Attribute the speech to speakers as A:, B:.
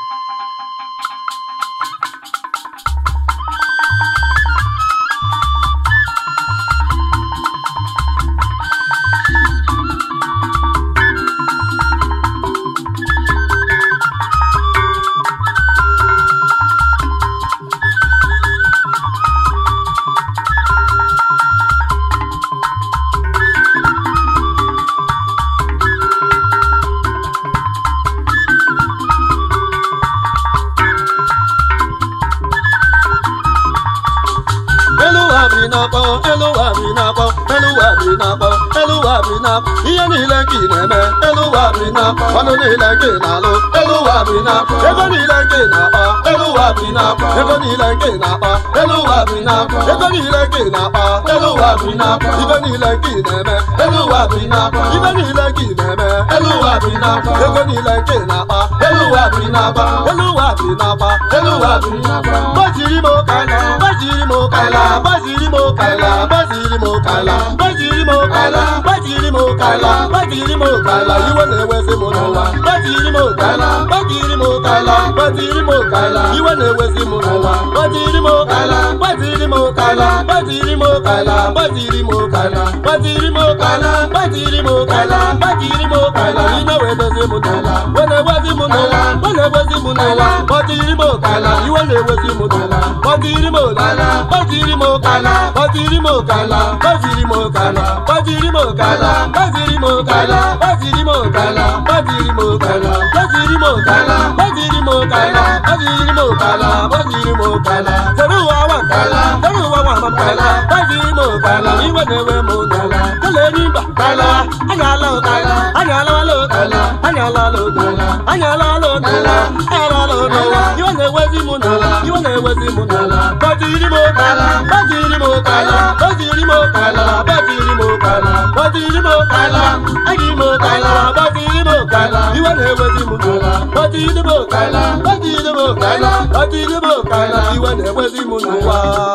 A: フフフフ。na-akpọ elu ụwa bi na-akpọ elu ụwa bi na-akpọ elu ụwa bi na ihe niile ka na-eme elu ụwa bi na ọnụ niile ka na-alụ elu ụwa bi na ego niile ka na-akpa elu ụwa bi na ego niile ka na-akpa elu ụwa bi na ego niile ka na-akpa elu ụwa bi na ibe niile ka na-eme elu ụwa bi na ibe niile ka na-eme elu ụwa bi na ego niile ka na-akpa elu ụwa bi na-akpa elu ụwa bi na-akpa elu ụwa bi na-akpa gbajiri m ụka gbajiri m ụka mo kàlà bájìrì mo kàlà bájìrì mo kàlà bájìrì mo kàlà bájìrì mo kàlà ìwọ na-ewezi mụ n'ụwa bájìrì mo kàlà bájìrì mo kàlà bájìrì mo kala. ìwọ na-ewezi mụ n'ụwa bájìrì mo kàlà bájìrì mo kàlà bájìrì mo kàlà bájìrì mo kàlà bájìrì mo kàlà bájìrì mo kala. bájìrì mo kàlà ìwọ na-ewezi mụ n'ụwa ewezi mụ n'ala mana ewezi mụ n'ala kpọtiri m ụkala iwe na-ewezi mụ n'ala kpọtiri kala, ụkala kpọtiri m ụkala kpọtiri kala, ụkala kpọtiri m ụkala kpọtiri kala, ụkala kpọtiri m ụkala kpọtiri kala, ụkala kpọtiri m ụkala kpọtiri kala, ụkala kpọtiri m ụkala kpọtiri kala, ụkala kpọtiri m kala, sere ụwa wakala sere ụwa wamakala kpọtiri kala, ụkala iwe na kala, m ụkala kele n'ịba ụkala kala, ụkala anyala lodo anyala lodo anyala lodo iwe na-ewezi mụ n'ala iwe na-ewezi mụ n'ala gbajiri m ụkala gbajiri m ụkala gbajiri m ụkala gbajiri m ụkala gbajiri m ụkala eji m ụkala gbajiri m ụkala iwe na-ewezi mụ n'ala gbajiri m ụkala gbajiri m ụkala gbajiri m ụkala iwe na-ewezi mụ n'ụwa